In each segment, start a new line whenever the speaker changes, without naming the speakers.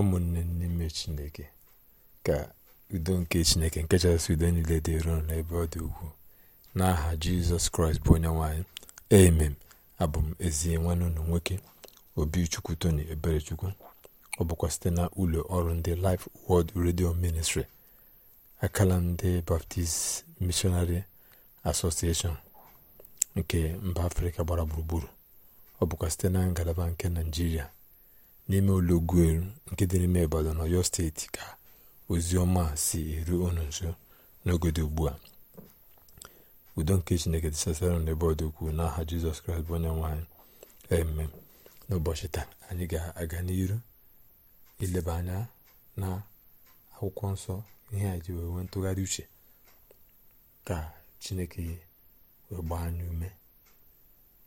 ụmụnne n'ime chineke ka udo nke chineke nke chasị udo niile dị ruo n'ebe ọ dị ugwu n'aha jizọs kraịst bụ onye nwanyị emem abụ m ezi nwanne ụlọ nwoke obichukwu tony eberechukwu ọ bụkwa site na ụlọ ọrụ ndị life world radio ministry akala ndị baptist missionary association nke mba afrịka gbara gburugburu ọ bụkwa site na ngalaba nke naijiria n'ime ụlọ ụlọugwuelu nke dị n'ime Ibadan Ọyọ steeti ka ozi ọma si eru unu nso n'oge dị ugbu a udo nke Chineke dịsasara n'ebe ọdụkwu n'aha Jizọs Kraịst bụ onye nwanyị eme n'ụbọchị taa anyị ga-aga n'iru ileba anya na akwụkwọ nsọ ihe a ji wee ntụgharị uche ka Chineke wee gbaa anyị ume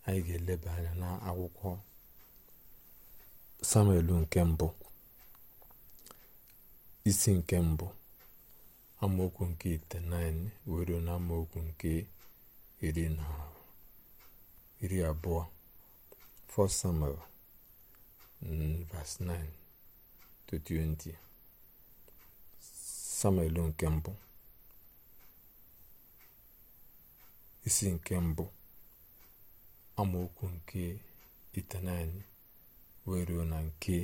anyị ga-eleba anya na akwụkwọ samuel nke mbụ isi nke mbụ amaokwu nke itenaịnị were na amaokwu nke iri na iri abụọ 1 Samuel mm, verse 9 to 20 Samuel nke mbụ isi nke mbụ amaokwu nke it9 wee ruo na nke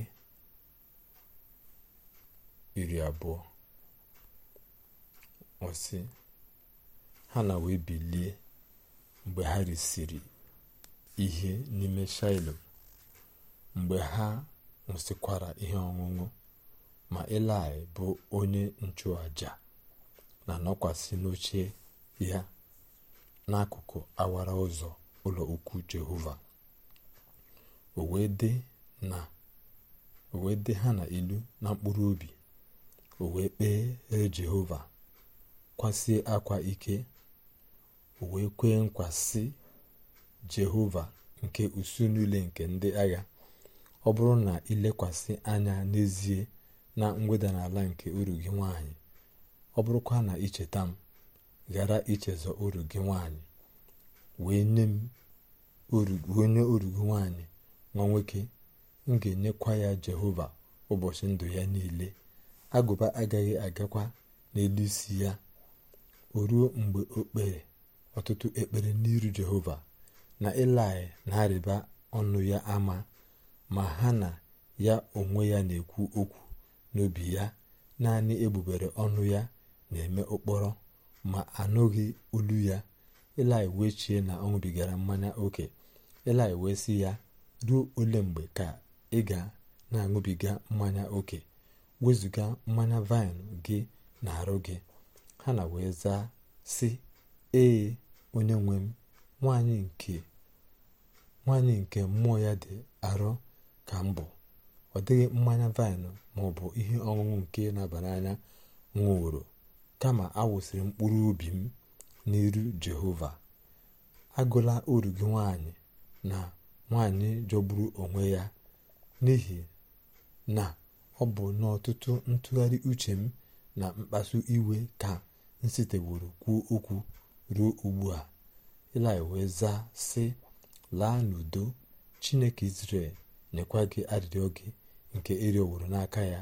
iri abụọ ọsị ha na wee bilie mgbe ha risiri ihe n'ime shailo mgbe ha nwụsịkwara ihe ọṅụṅụ ma elai bụ onye nchụàja na nọkwasị n'oche ya n'akụkụ awara ụzọ ụlọ ukwu jehova o wee dị na o wee dị ha na ilu na mkpụrụ obi o wee kpee jehova kwasie akwa ike o wee kwee nkwasị jehova nke usu niile nke ndị agha ọ bụrụ na ilekwasị anya n'ezie na mweda n'ala nke uru gị nwanyị ọ bụrụkwa na icheta m ghara ichezọ uru gị nwanyị wee nye m onye uru nwanyị nwa nwoke m ga-enyekwa ya jehova ụbọchị ndụ ya niile agụba agaghị agakwa n'elu isi ya o ruo mgbe o kpere ọtụtụ ekpere n'iru jehova na ịlaị na-arịba ọnụ ya ama ma ha na ya onwe ya na-ekwu okwu n'obi ya naanị egbubere ọnụ ya na-eme ụkpọrọ ma anụghị olu ya ịlaị wee chie na ọnwụbigara mmanya oke ịlaị wee sị ya ruo ole mgbe ka ị ga na-aṅụbiga mmanya oke wezụga mmanya vaịn gị na arụ gị ha na wee zaa si ee onye nwe m nwanyị nke mmụọ ya dị arụ ka mbụ ọ dịghị mmanya vaịn maọbụ ihe ọṅụṅụ nke na-aba n'anya nwụrụ kama awụsịrị mkpụrụ obi m n'iru jehova agụla oru gị nwanyị na nwanyị jọgburu onwe ya n'ihi na ọ bụ n'ọtụtụ ntụgharị uche m na mkpasu iwe ka m siteworo kwuo okwu ruo ugbu a ilaị wee zaa sị laa n'udo chineke israel nyekwa gị arịrịọ gị nke ịrịọworo e n'aka ya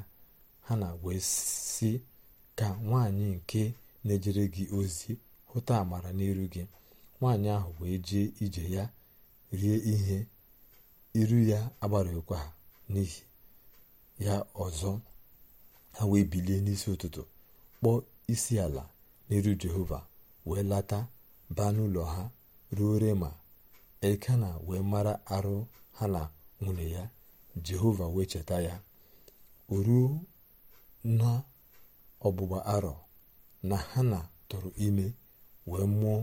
ha na wee sị ka nwaanyị nke na-ejere gị ozi hụta amara n'iru gị nwaanyị ahụ wee jee ije ya rie ihe iru ya agbarakwa ha n'ihi ya ọzọ ha wee bilie n'isi ụtụtụ kpọọ isi ala n'iru jehova wee lata baa n'ụlọ ha ruo rema elkana wee mara arụ ha na nwunye ya jehova wee cheta ya ruo na ọgbụgba arọ na ha na-tọrọ ime wee mụọ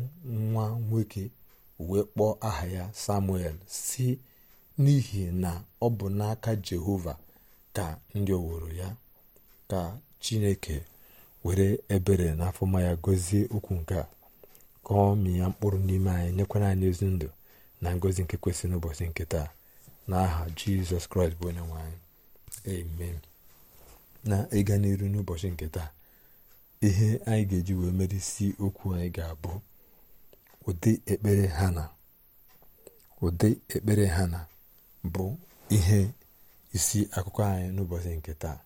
nwa nwoke wee kpọọ aha ya samuel si n'ihi na ọ bụ n'aka jehova ka ndị oworo ya ka chineke were ebere na afọma ya gọzie okwu nke a ka ọ mịa mkpụrụ n'ime anyị nyekwara anyị ezi ndụ na ngọzi nke kwesịrị n'ụbọchị nke taa n'aha jizọs kraịst bụ onye nwe anyị amen na ịga n'iru n'ụbọchị nke taa ihe anyị ga-eji wee merisi okwu anyị ga-abụ ụdị ụdị ekpere ha na bụ ihe isi akụkọ anyị n'ụbọchị nke taa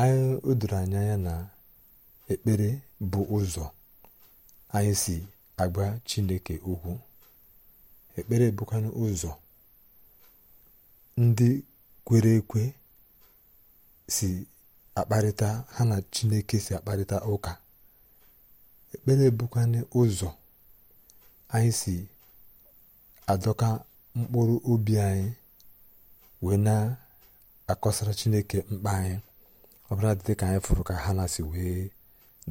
anyị o doro anyị na ekpere bụ ụzọ anyị si agba chineke ukwu ekpere bụkwanụ ụzọ ndị kwere ekwe si akparịta ha na chineke si akparịta ụka ekpere bụkwanụ ụzọ anyị si adọka mkpụrụ obi anyị wee na-akọsara chineke mkpa anyị ọbara dị ka anyị fụrụ ka ha na-asị wee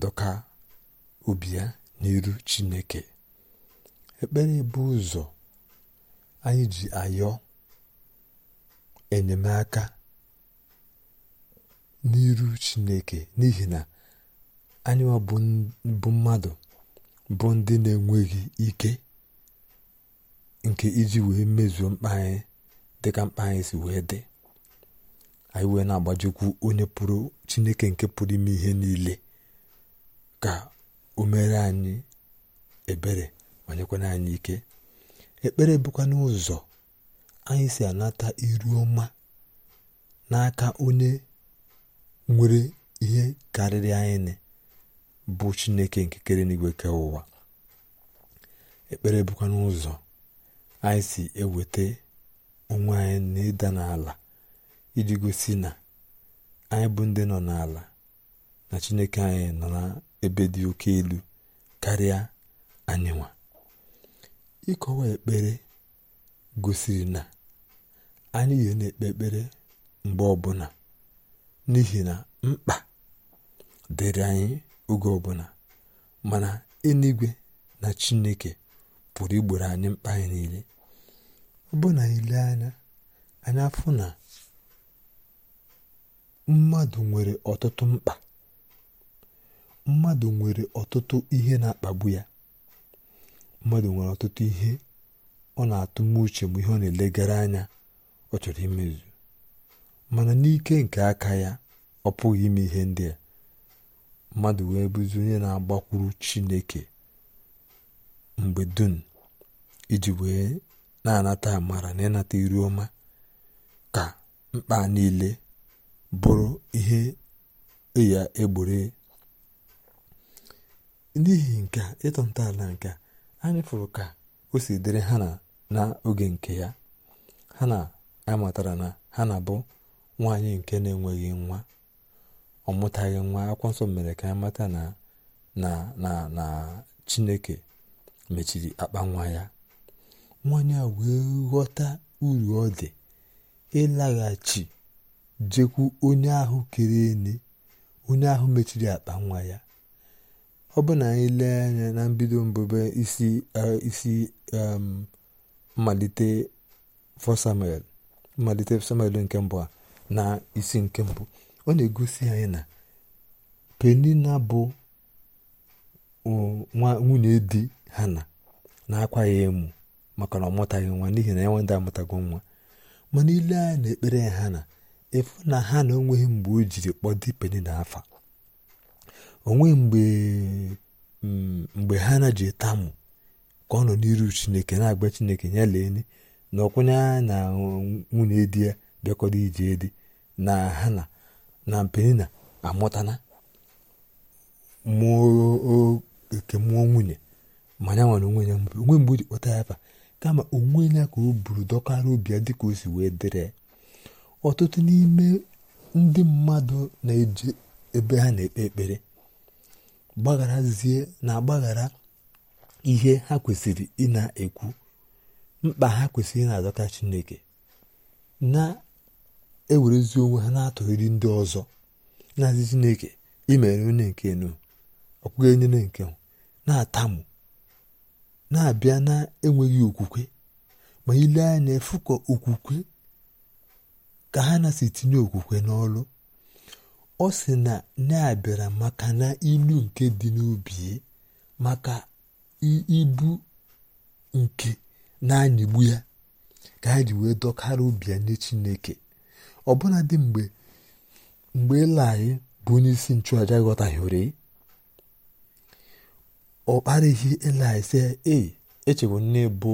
dọka obi ya n'iru chineke ekpere bụ ụzọ anyị ji ayọ enyemaka n'iru chineke n'ihi na anyị bụ mmadụ bụ ndị na-enweghị ike nke iji wee mezuo mkpa anyị dịka mkpa anyị si wee dị anyị wee na-agbajikwu onye pụrụ chineke nke pụrụ ime ihe niile ka o mere anyị ebere ma nyekwara anyị ike ekpere bụkwa n'ụzọ anyị si anata iru ọma n'aka onye nwere ihe karịrị anyị bụ chineke nke kere n'igwe ke ụwa ekpere bụkwa n'ụzọ anyị si eweta onwe anyị na ịda n'ala iji gosi na anyị bụ ndị nọ n'ala na chineke anyị nọ n'ebe dị oke elu karịa anyị nwa ịkọwa ekpere gosiri na anyị ihe na-ekpe ekpere mgbe ọbụla n'ihi na mkpa dịrị anyị oge ọbụla mana eluigwe na chineke pụrụ igboro anyị mkpa anyị niile ọ bụ na ile anya anyị afụ na mmadụ nwere ọtụtụ mkpa mmadụ nwere ọtụtụ ihe na-akpagbu ya mmadụ nwere ọtụtụ ihe ọ na-atụ uche bụ ihe ọ na-elegara anya ọ chọrọ imezu mana n'ike nke aka ya ọ pụghị ime ihe ndị a mmadụ wee bụzi onye na-agbakwuru Chineke mgbe dum iji wee na-anata amara na ịnata iru ọma ka mkpa niile bụrụ ihe e ya egboro e. n'ihi nke ịtọ ntọala nke anyị fụrụ ka o si dịrị ha na oge nke ya ha na-amatara na ha na bụ nwaanyị nke na-enweghị nwa ọ nwa akwụkwọ nsọ mere ka amata na na na chineke mechiri akpa nwa ya nwaanyị a wee ghọta uru ọ dị ịlaghachi jekwu onye ahụ kere ene onye ahụ mechiri akpa nwa ya ọ bụ na anyị lee anya na mbido mbụbe isi isi um, mmalite fọ mmalite samuel nke mbụ a na isi nke mbụ ọ na-egosi anyị na penina bụ um, nwa nwunye di hana na-akwa ya emu maka na ọ mụtaghị nwa n'ihi na ya nwenda amụtago nwa mana ile anya na ekpere ha na efu na ha na onweghị mgbe o jiri kpọdo penye na afa onweghị mgbe mm, mgbe ha na ji tamụ ka ọ nọ n'iru chineke na-agba chineke ya lee na ọkwụnye anya na nwunye di ya bịakọrọ ije edi na ha na na penina amụtana mụọ oke mmụọ nwunye ma ya nwere onwe ya onwe mgbe o ji kpọta ya afa kama onwe ya ka o buru dọkara obi ya dịka o si wee dịrị ọtụtụ n'ime ndị mmadụ na-eje ebe ha na-ekpe ekpere gbagharazie na-agbaghara ihe ha kwesịrị ị ekwu mkpa ha kwesịrị na-adọta chineke na-ewerezi onwe ha na-atụghịrị ndị ọzọ na-azị chineke imere onye nke nu ọkwụghị onye nke na-atamụ na-abịa na-enweghị okwukwe ma ile anya efukọ okwukwe ka ha na si tinye okwukwe n'ọlụ ọ sị na na-abịara maka na ilu nke dị n'obi maka ibu nke na-anyịgbu ya ka ha ji wee dọkara obi ya nye Chineke ọbụna dị mgbe mgbe bụ onye isi nchụaja ghọtaghịrị ọ kparịghị eli sị ee echewo nne bụ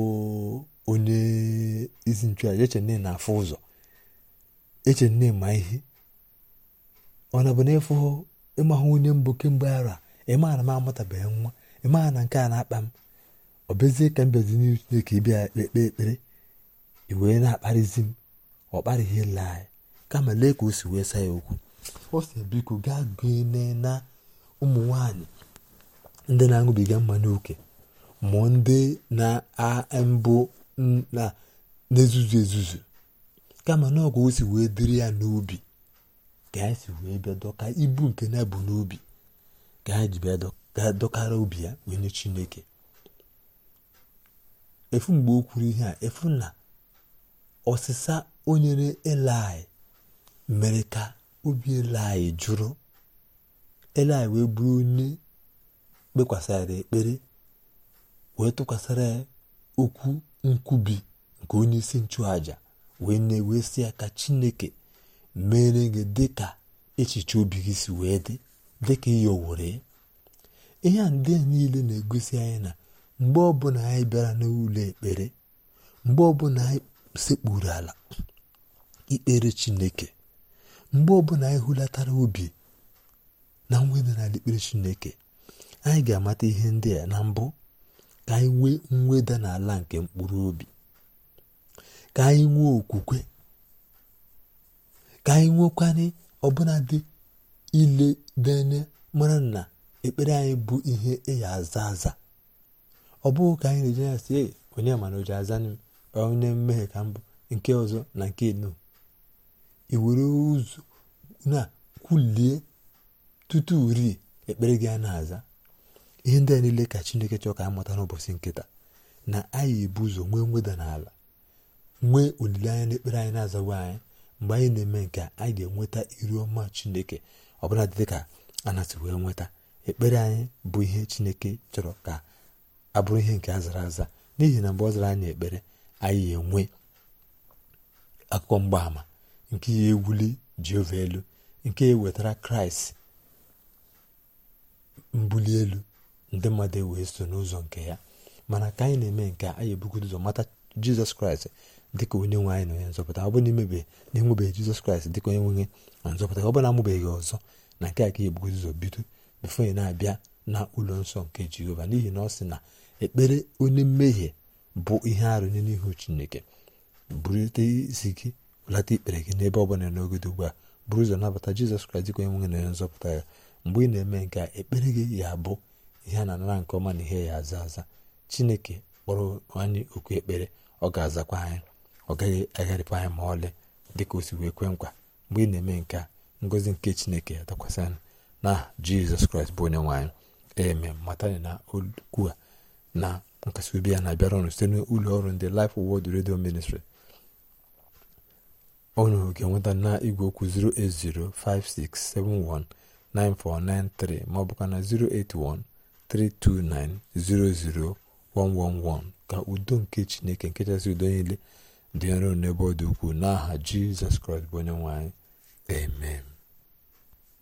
onye isi nchụaja eche nne na-afụ ụzọ eche nne ma ihe ọ na bụ n'efu ịmahụ onye mbụ kemgbe ara ịma na m amụtabeghị nwa ịma na nke a na-akpa m ọ bezie ka m bezi n'ihu Chineke ịbịa ekpe ekpere iwee na-akparịzi m ọ kparịghị ele anyị kama lee ka o si wee saa ya okwu ọ sị biko gaa gụnye na ụmụ nwanyị ndị na-aṅụbiga mma n'oke ma ndị na ambụ na-ezuzu ezuzu kama na o si wee dịrị ya n'obi ka ya si wee bịa dọka ibu nke na ebu n'obi ka ya ji bịa dọkara obi ya wee chineke efu mgbe o kwuru ihe a efu na ọsịsa onyere nyere mere ka obi elai jụrụ eli wee bụrụ onye kpekwasara ekpere wee tụkwasara ya okwu nkwubi nke onye isi nchụaja wee na-ewesị ya ka chineke mere gị dịka echiche obi gị si wee dị dịka ihe owere ihe a ndị niile na-egosi anyị na mgbe ọbụla anyị bịara n'ụlọ ekpere mgbe ọbụla anyị sekpuru ala ikpere chineke mgbe ọbụla anyị hulatara obi na nwere n'ala ikpere chineke anyị ga-amata ihe ndị a na mbụ ka anyị nwee mweda n'ala nke mkpụrụ obi ka anyị nwee okwukwe ka anyị nwekwana ọbụnadị ile dene mara na ekpere anyị bụ ihe ịya e aza aza ọ bụghị ka anyị na-eje ya si onye mana oji aza m onye mmehie ka mbụ nke ọzọ na nke eno iwere ụzọ na kwulie tutu rie ekpere gị a na-aza ihe ndị a niile ka chineke chọọ ka a mụta n'ụbọchị nkịta na anyị ebu ụzọ nwee mweda n'ala nwee olileanya n'ekpere anyị na-azawa anyị mgbe anyị na-eme nke a anyị ga-enweta iru ọma chineke bụla dị ka anasị wee nweta ekpere anyị bụ ihe chineke chọrọ ka abụrụ ihe nke a zara aza n'ihi na mgbe ọ zara anyị ekpere anyị enwe akụkọ mgbaàmà nke ya ewuli jehova elu nke ya wetara kraịst mbuli elu ndị mmadụ ewee so n'ụzọ nke ya mana ka anyị na-eme nke anyị ebugodo ụzọ mata jizọs kraịst dịka onye nwe anyị na onye nzọpụta ọ bụ na imebe na-enwebeghị jizọs kraịst dịka onye nwenye na nzọpụta ọ bụ na amụbeghị ọzọ na nke a ka ebugodo ụzọ bido bifo ya na-abịa na ụlọ nsọ nke jehova n'ihi na ọ sị na ekpere onye mmehie bụ ihe arụ nye n'ihu chineke burute isi gị bụlata ikpere gị n'ebe ọ bụla n'ogode ugbu a bụrụ ụzọ nabata jizọs kraịst dịka onye nwenye na onye nzọpụta ya mgbe ị na-eme nke a ekpere gị ya bụ ihe a na-anara nke ọma na ihe ya aza aza chineke kpọrọ anyị okwu ekpere ọ ga-azakwa anyị ọ gaghị agharịpụ anyị ma ọlị dịka o si wee kwe nkwa mgbe ị na-eme nke a ngozi nke chineke dakwasị anyị na jizọs kraịst bụ onye nwaanyị eme matani na okwu a na nkasi obi ya na-abịara ọrụ site n'ụlọ ọrụ ndị Life Word redio Ministry unu ga-enweta na igwe okwu 08056719493 ma ọ bụkwa na 081 329-00111 ka udo nke chineke nke chasị udo niile dị nro n'ebe ọ dị ukwuu n'aha jizọs kraịst bụ onye nwanyị anyị amen